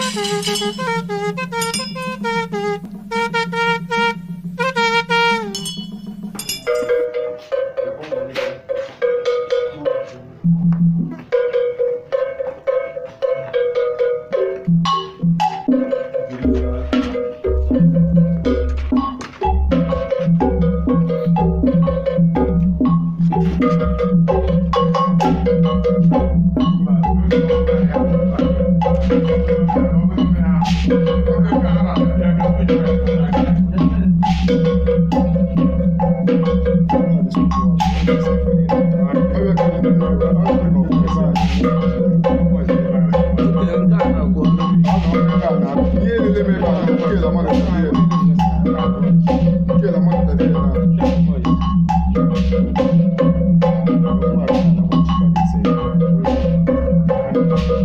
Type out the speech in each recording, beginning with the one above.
Thank you.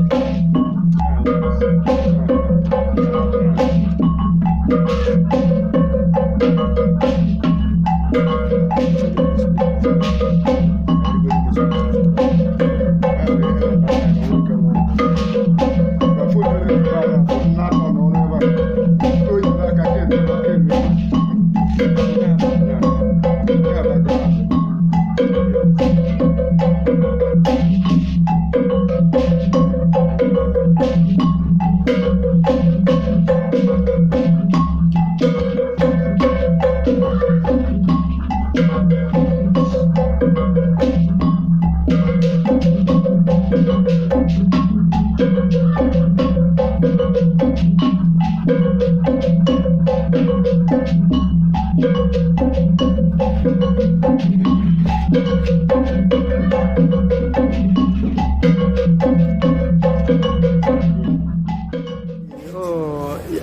Thank you.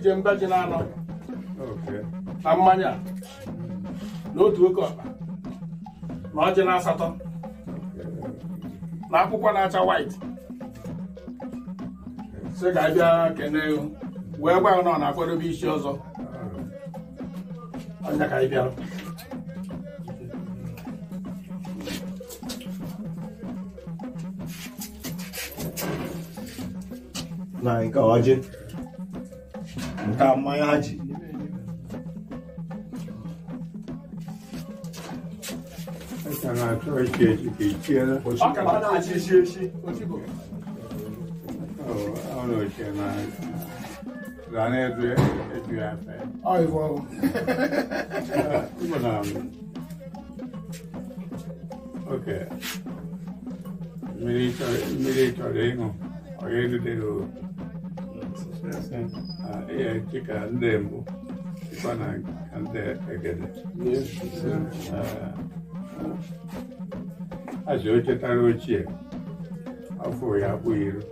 Ije mbe ji na-anọ na mmanya n'otu oke ọkpa na ọjị na asatọ na akwụkwọ na-acha white sị ka bịa kelee wee gwa ọ na akwadobe isi ọzọ ọnya ka anyị bịara na nke ọjị tamanho radinho. Sana tsohon ke ke que Baka ba na ce shi shi. Ono ke na zane edu edu ya fe. Ai wo. Ibo na. Okay. Miri tore miri tore ngo. Oye du deru. Success. dịka ndị mbụ dịkwa na ndị egede aji ochetara ochie afọ ya abụ iri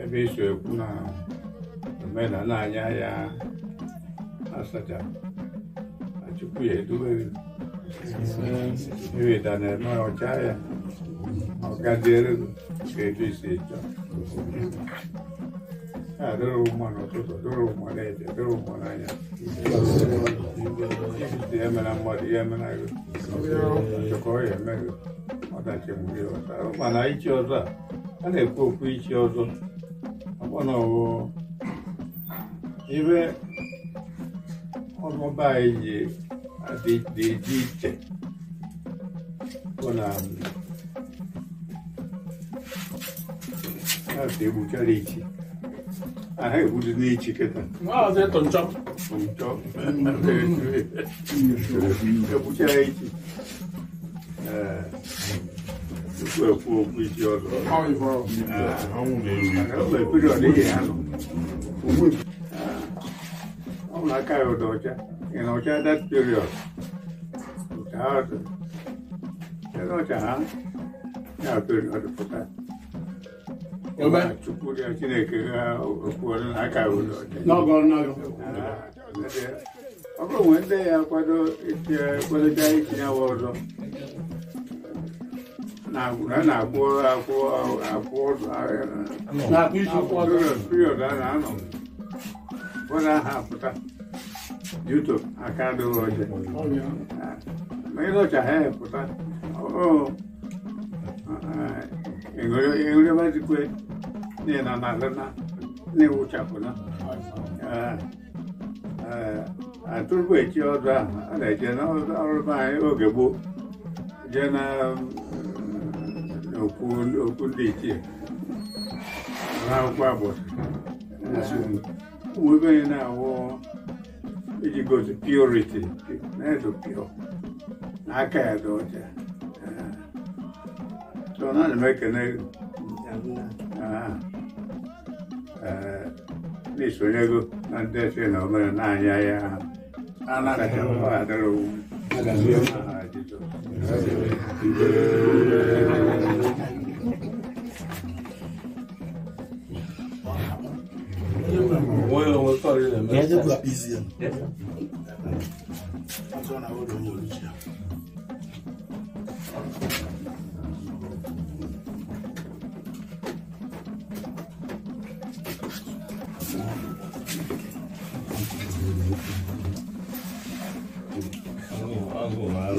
ebe iso ekwu na omenala anya ya asacha na chukwu ya edubere iweda na-eme ọcha ya ọgadịelu Kete seja. Adoro umano toto, adoro umalete, adoro umananya. Ibiti yemena mwadi yemena yu. Choko yemena yu. Mata chemuri wata. Umana ichi wata. Ane kuku ichi wata. Abono wo. Ibe. Ọmọ báyìí yé. Adéjì tẹ̀. Kọ́nà àmì. ja heb het niet te ketten. Wat is dat? On top? On top? Ik heb het niet te ketten. Ik heb het niet te ketten. Ik heb het niet te ketten. Ik heb niet te ketten. Ik heb het niet te ketten. Ik heb en niet te ketten. Ik heb het het tupu Chineke ọ bụrụ ndị ya kwado itinye awa ọzọ na na period a na-anọ ụfọdụ aha apụta yuto aka adịghị ma এগুলো মানে কই নে না না না নে উঠাবো না atụrụ echi ọdụ ahụ a na-eje n'ọrụ anyị oge gboo jee na okwu ndị ichie na akwụkwọ agbọsị webe anyị na-awụ iji gosi purity na-edo pure na aka ya dị ọcha tôi nói là mấy cái này à, à đi xuống nhà cô anh để xe nó à, à, mà nà nhà nhà anh là cái ông bà đó luôn Yes, it's not easy. Yes. I'm going to hold on to you.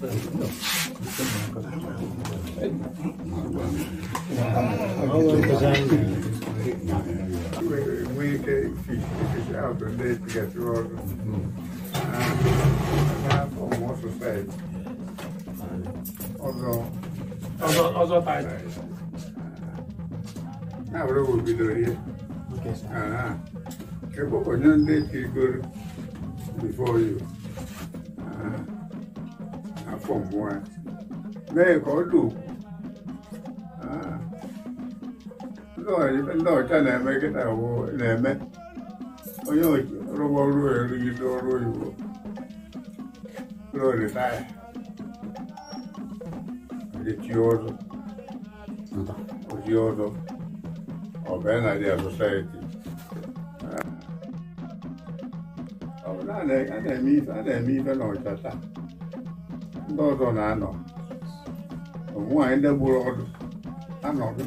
Wednesday, out And now, what will be doing here? Okay, sir. uh Okay, but when you're before you. pọ̀ fún okwu bẹ́ẹ̀ kọ́ na ah. lọ́ọ̀tà lẹ́ẹ̀mẹ́ kíta wo lẹ́ẹ̀mẹ́ onye rọgbọ ruo erugide ọrụ oyibo ruo ritaya ọzọ oji ọzọ ọbụla na dị ọ a na-eme ife na ọcha taa ndị ọzọ na-anọ ụmụ nwaanyị ndị gburu ọdụ anọghị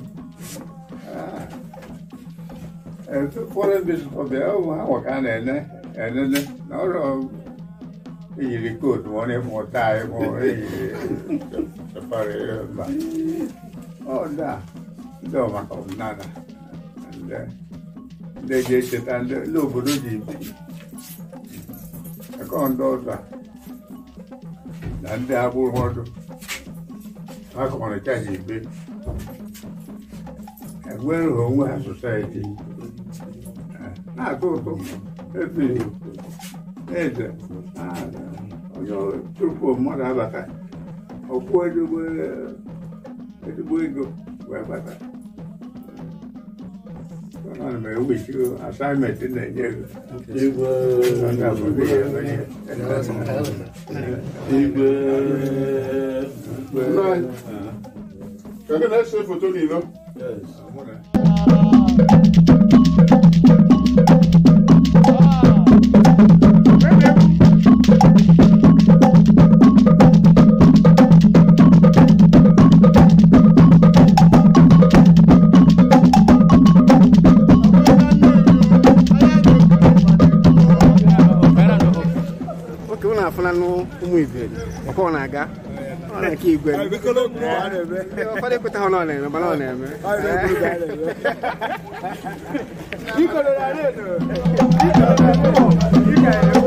ah. eh, ụfọdụ ndị ọbịa ahụ ka a na-ene enene na ọrụ eyiri kootu ọ na-ekwu ọta ịkpụ eyiri mba ọda ndị ọmaka ọdịnala ndị ji echeta ndị obodo ji bi akọ ndị ọzọ na ndị agbụrụ ọdụ akọmarịta ha ikpe enwere onwe ha sosaiti na-atọ ụtọ eze onye tupu mmadụ abata ọkwụ ezigbo ego wee bata Mày không bị chưa assignment trên này như Yêu bơ Cái này sẽ phụ tôi đi luôn Yes n'anụ ụmụ iberi ọkwa ọ na-aga ọ na-aka igwe ụfọdụ ekweta ha na ọ na-eme